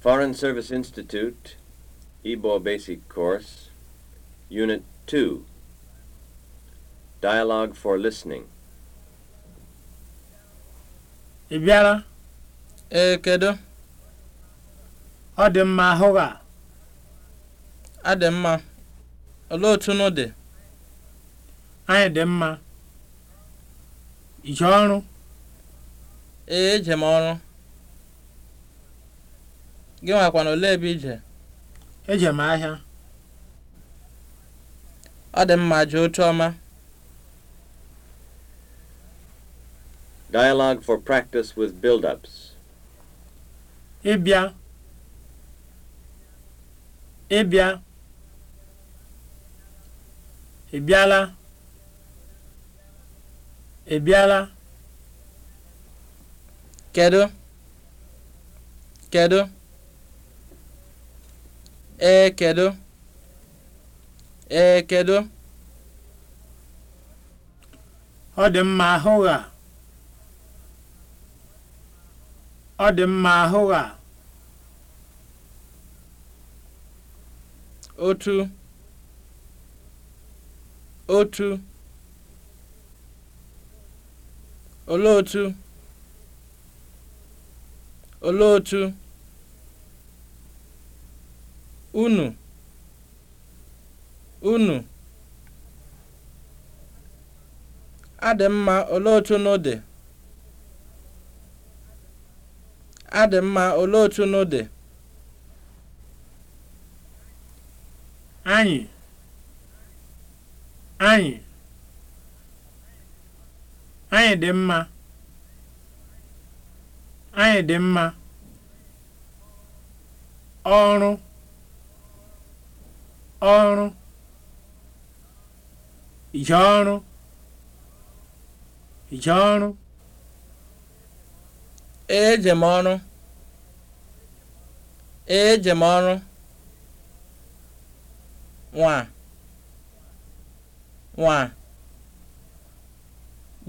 Foreign Service Institute, Igbo Basic Course, Unit 2, Dialogue for Listening. Ị bịara? Ee, kedu? Ọ dị mma ahụ gị a? A dị mma. Olee Anyị dị mma. Ije ọrụ? Ee, ọrụ. gị na ole ebe ije eje m ahịa ọ dị mma jee otu ọma Dialogue for practice with build-ups. Ịbịa. Ịbịa. Ịbịala. Ịbịala. Kedu? Kedu? ekedo ekedo ọ dị mma ahụgha ọ dị mma ahụgha otu otu olee otu olee otu unu unu adị mma olee otu unu dị adị mma olee otu unu dị anyị anyị anyị dị mma anyị dị mma ọrụ ọrụ ije ọrụ ije ọrụ eje m ọrụ eje m ọrụ nwa nwa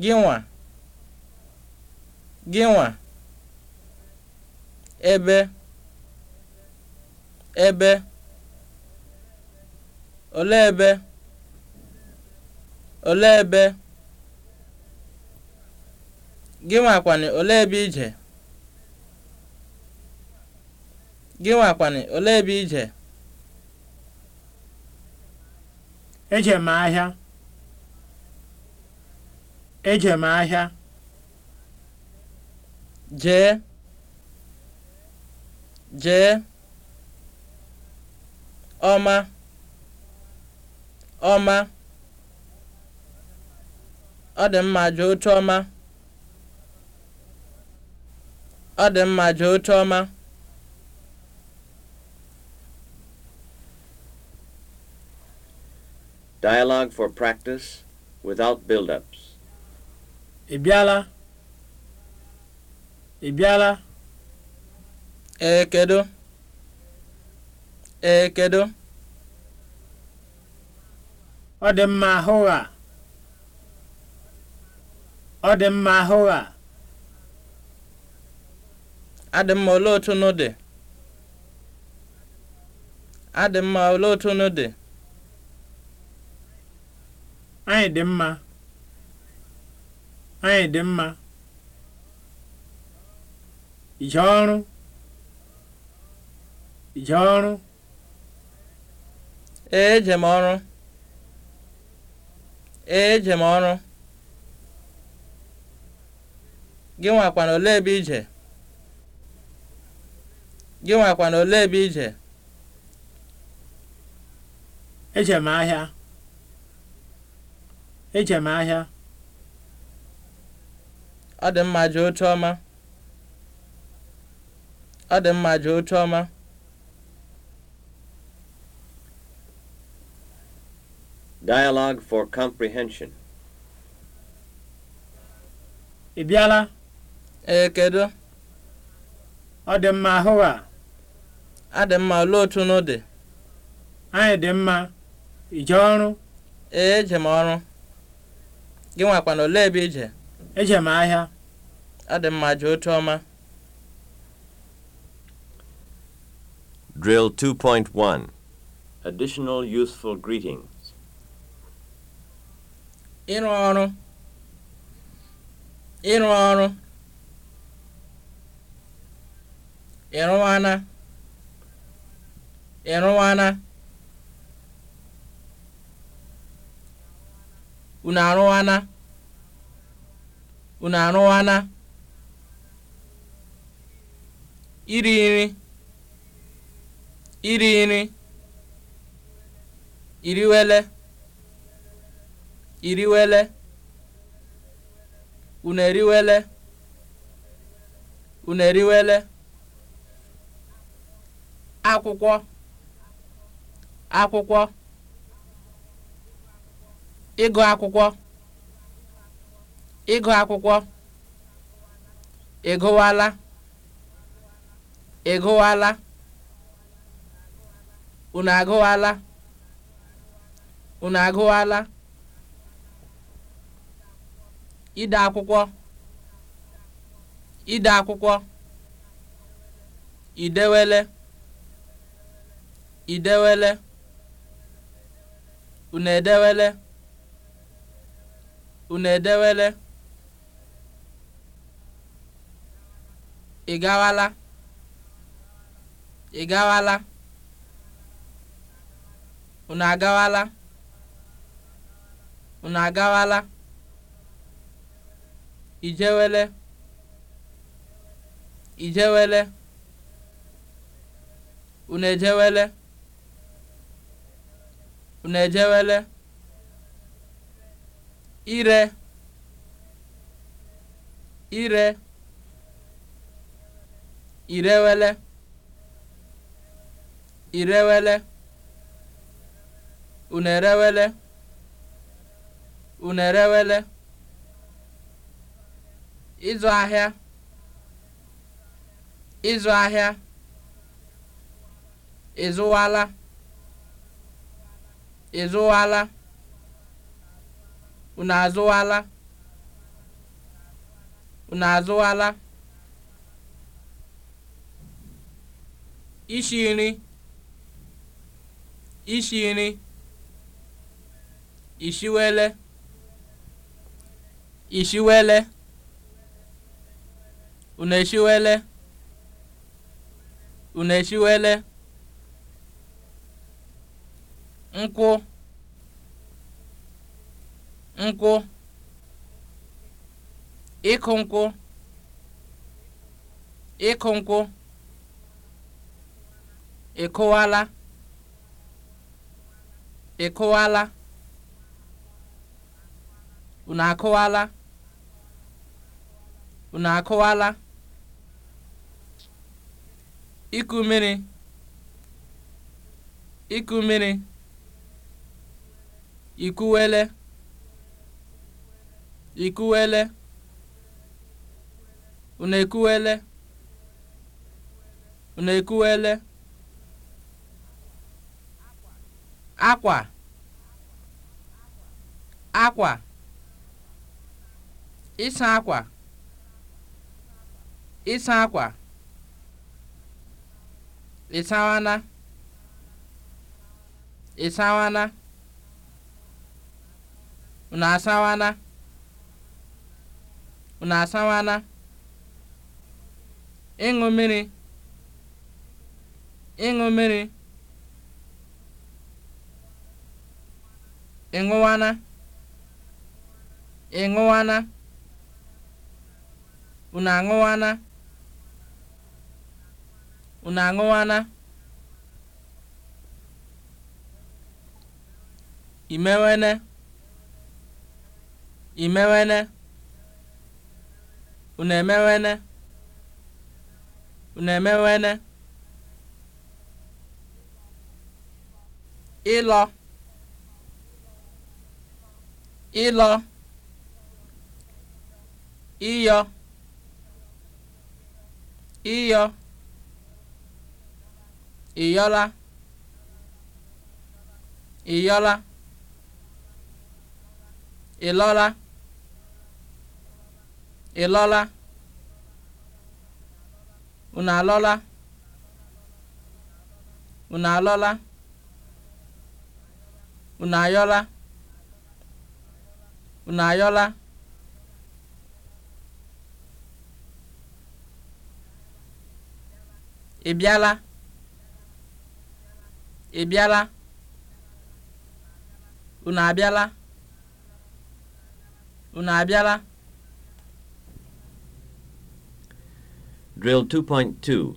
gị nwa gị nwa ebe ebe olee ebe olee ebe gịnwakwani olee ebe ije gịnwakwani olee ebe ije eje m ahịa eje m ahịa jee jee ọma ọma, ọ dị mma jụ oche ọma, ọ dị mma jụ oche ọma. Dialogue for practice without build-ups. Ị bịala? Ị bịala? Ee, kedu? Ee, kedu? ọ dị mma ahụ gha ọ dị mma ahụ A adị mma olee otu nụ dị adị mma olee otu nụ dị anyị dị mma anyị dị mma ije ọrụ ije ọrụ ee eje m ọrụ ee eje m ọrụ gị nwakwana ole ebe ije gị nwakwana ole ebe ije eje m ahịa eje m ahịa ọ dị mma jee otu ọma ọ dị mma jee otu ọma Dialogue for Comprehension. Ị bịala? Ee, kedu? Ọ dị mma ahụ a? A dị mma olee otu nụ dị? Anyị dị mma. Ije ọrụ? Ee, eje m ọrụ. Gị nwakwana olee ebe ije? Eje m ahịa. Ọ dị mma jee otu ọma. Drill 2.1 Additional Useful Greeting ịrụ ọrụ ịrụ ọrụ ịrụwana ịrụwana unu arụwana unu arụwana iri nri iri nri iriwele iriwele unu eriwele unu eriwele akwụkwọ akwụkwọ ịgụ akwụkwọ ịgụ akwụkwọ ịgụwala ịgụwala unu agụwala unu agụwala ide akwụkwọ ide akwụkwọ idewele idewele unu edewele edewele ị gawala ị gawala unu agawala unu agawala ijewele ijewele unejewele unejewele ire ire irewele irewele unerewele unerewele ịzụ ahịa ịzụ ahịa ịzụwala ịzụwala unu azụwala unu azụwala isi nri isi nri ishiwele ishiwele Unu eshiwele? Unu eshiwele? Nkwụ. Nkwụ. Ịkụ nkwụ. Ịkụ nkwụ. Ịkụwala. Ịkụwala. Unu akụwala. Unu akụwala. iku mmiri iku mmiri ikuwele ikuwele una ekuwele una ekuwele akwa akwa ịsa akwa ịsa akwa ịsawana ịsawana unu asawana unu asawana ịṅụ mmiri ịṅụ mmiri ịṅụwana ịṅụwana unu aṅụwana unu aṅụwana imewene imewene unu emewene unu emewene ịlọ ịlọ ịyọ ịyọ ịyọla ịyọla ịlọla ịlọla unu alọla unu alọla unu ayọla unu ayọla ị ị bịala unu abịala unu abịala Drill 2.2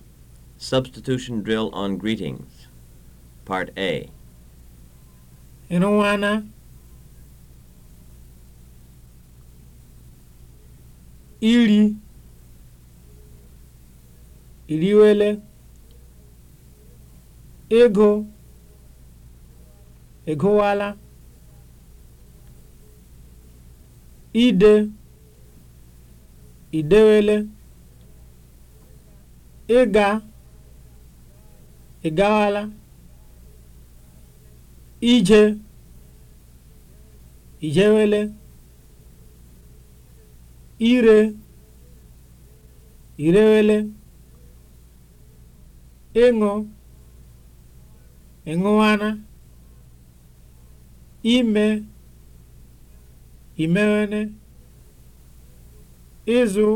Substitution Drill on Greetings Part A Ịrụwana iri iriwele ego egowala ide idewele ịga ịgawala ije ijewele ire irewele ịṅụ ịṅụwana ime imewene ịzụ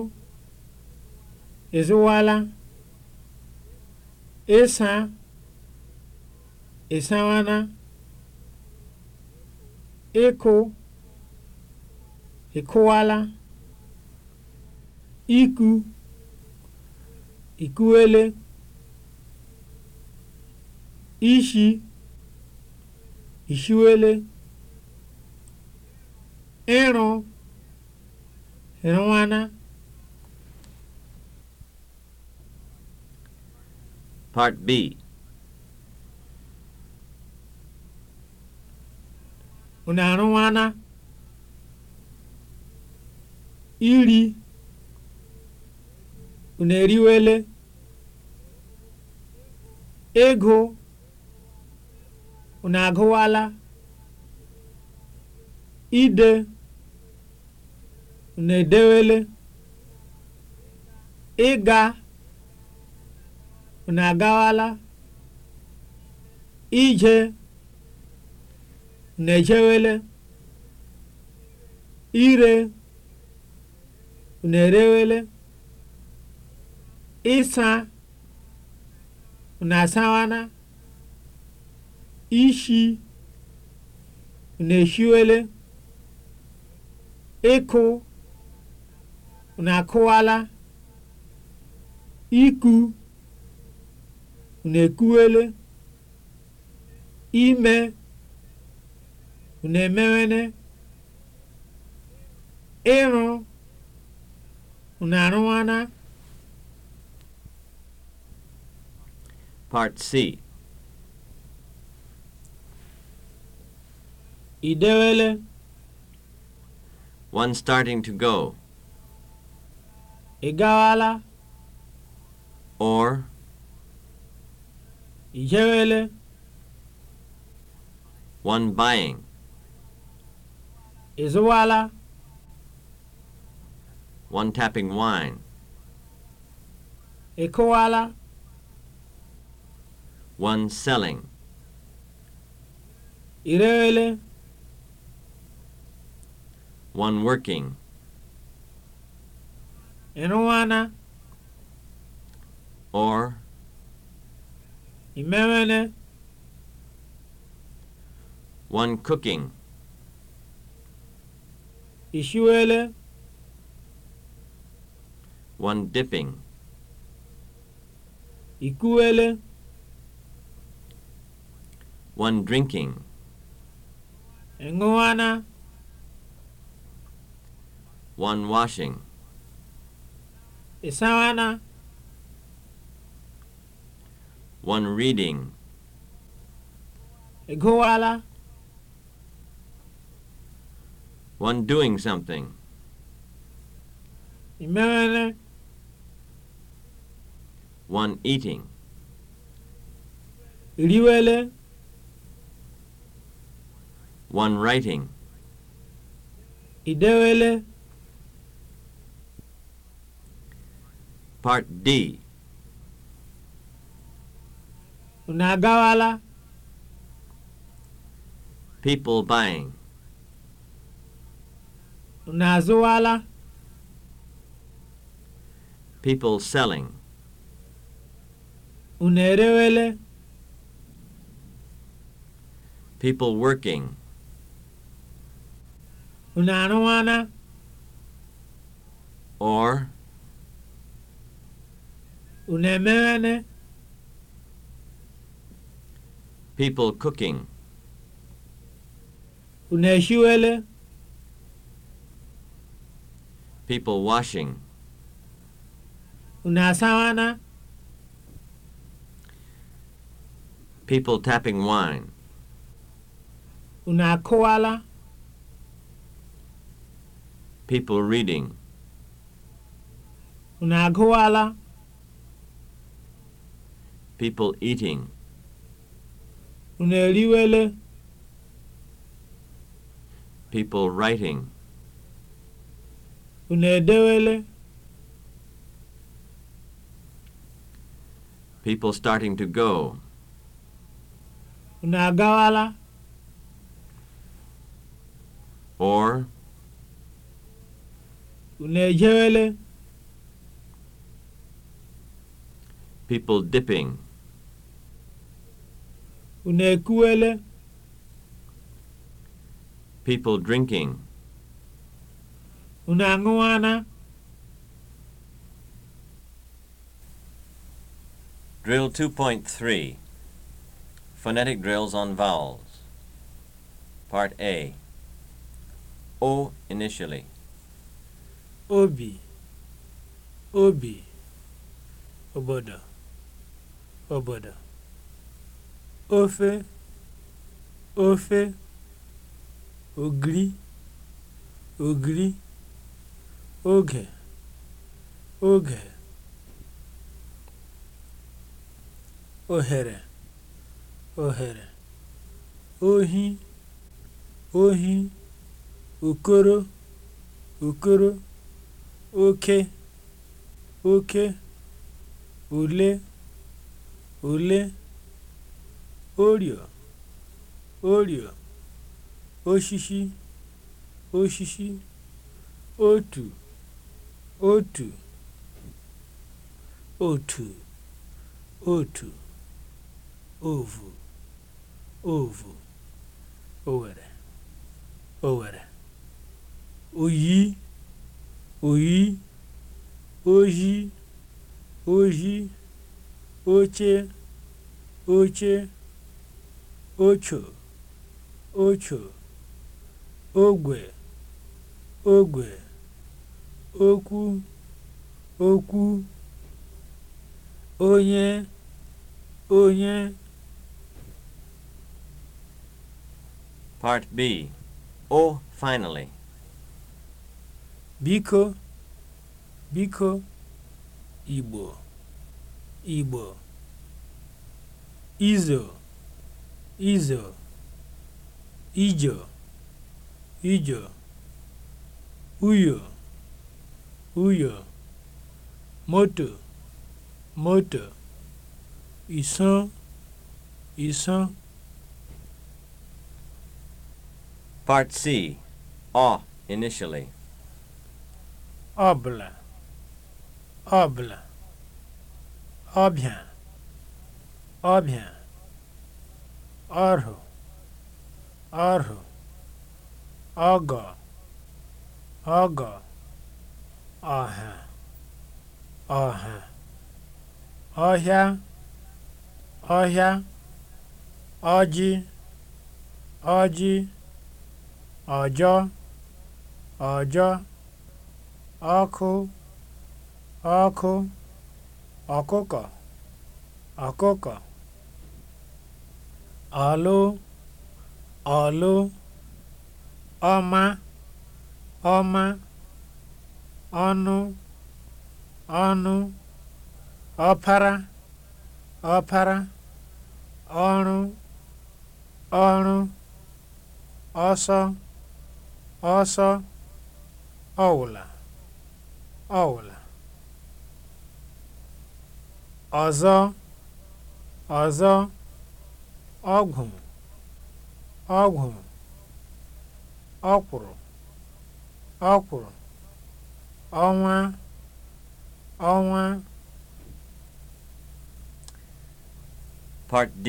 ịzụwala ịsa ịsawana ịkụ ịkụwala iku ikuwele ishi ishiwele Ịrụ rụwana Part B arụwana iri unu eriwele ego unu agụwala ide na-edewele ịga unu agawala ije na ire Nerewele. erewele ịsa na asawana ishi unu eshiwele ịkụ unu akụwala iku unu ekuwele ime unu emewene ịrụ unu arụwana Part C. Idewele. One starting to go. Ị or Ị jewele? one buying, Ị zụwala? one tapping wine, Ị kụwala? one selling, Ị one working. ịrụwana or imewele one cooking Ishwele, one dipping ikuwele one drinking ịṅụwana one washing ịsawana one reading ịgụwala one doing something imewele one eating iriwele one writing idewele Part D. Unu agawala? People buying. Unu azụwala? People selling. Unu erewele? People working. Unu arụwana? Or Unu emeghene? People cooking. Unu ehiwele? People washing. Unu asawana? People tapping wine. Unu akụwala? People reading. Unu agụwala? people eating. Unu eriwele? People writing. Unu edewele? People starting to go. Unagawala? Or? Unu ejewele? People dipping. Unu ekuwele? People drinking. Unu aṅụwana? Drill 2.3 Phonetic drills on vowels. Part A. O initially. Obi. Obi. Obodo. Obodo. ofe ofe ogiri ogiri oge oge ohere ohere ohi ohi okoro okoro oke oke ole ole orio orio oshishi oshishi otu otu otu otu ovu ovu owere owere oyi oyi oji oji oche oche ocho ocho ogwe ogwe okwu okwu onye onye Part B Oh, finally Biko biko Igbo Igbo Izo izo ijo ijo uyo uyo moto moto ìsán ìsán. Part C. Ọ initially. Ọbụla ọbụla ọbịa ọbịa ọrụ ọrụ ọgọ ọgọ ọha ọha ọhịa ọhịa ọjị ọjị ọjọ ọjọ ọkụ ọkụ ọkụkọ ọkụkọ ọlụ ọlụ ọma ọma ọnụ ọnụ ọpara ọpara ọrụ ọrụ ọsọ ọsọ ọwụla ọwụla ọzọ ọzọ ọgwụ ọgwụ ọkwụrụ ọkwụrụ ọnwa ọnwa Part D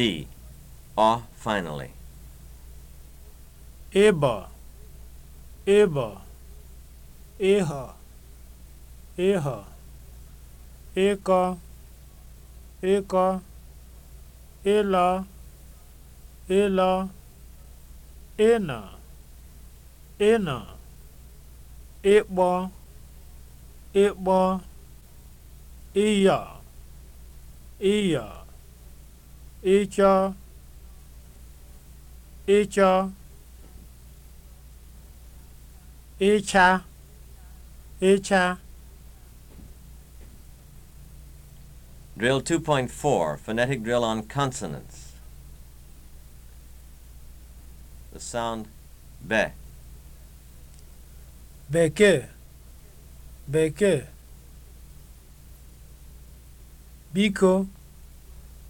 or finally ịbọ ịbọ Ịhọ ịghọ ịkọ ịkọ ịlọ ịla ịna ịna ịkpọ ịkpọ ịya ịya ịchọ ịchọ ịcha ịcha Drill 2.4, phonetic drill on consonants. the sound Bekee, bekee. Biko,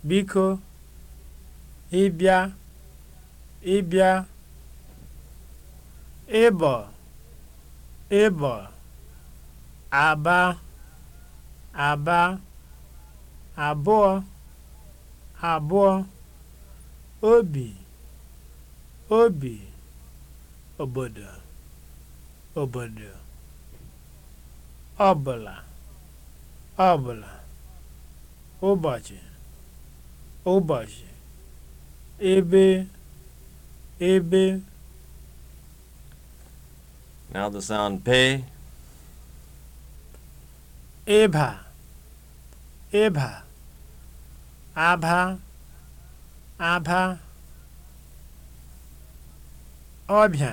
biko. ibia, ibia, ibo, ibo, Aba, aba. Abụọ, abụọ. Obi. obi obodo obodo ọbụla ọbụla ụbọchị ụbọchị ebe ebe Now the sound P. Eba. Eba. abha abha ọbịa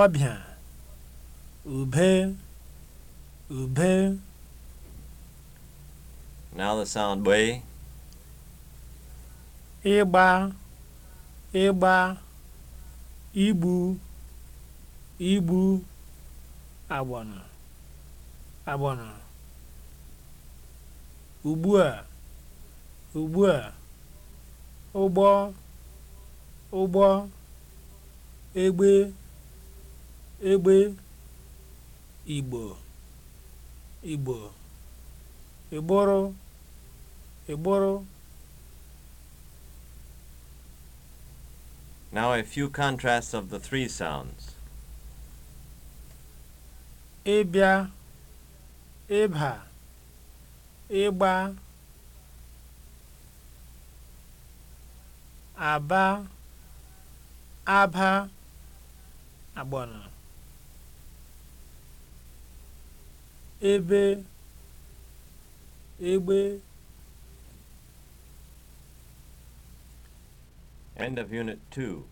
ọbịa ube ube now the sound ịgba ịgba igbu ibu, agbọnọ agbọnọ ugbu a ugbu a ụgbọ ụgbọ egbe egbe igbo igbo Igboro, igboro Now a few contrasts of the three sounds. Ịbịa, ịba, ịgba, aba, aba. agbana ebe egbe End of Unit 2.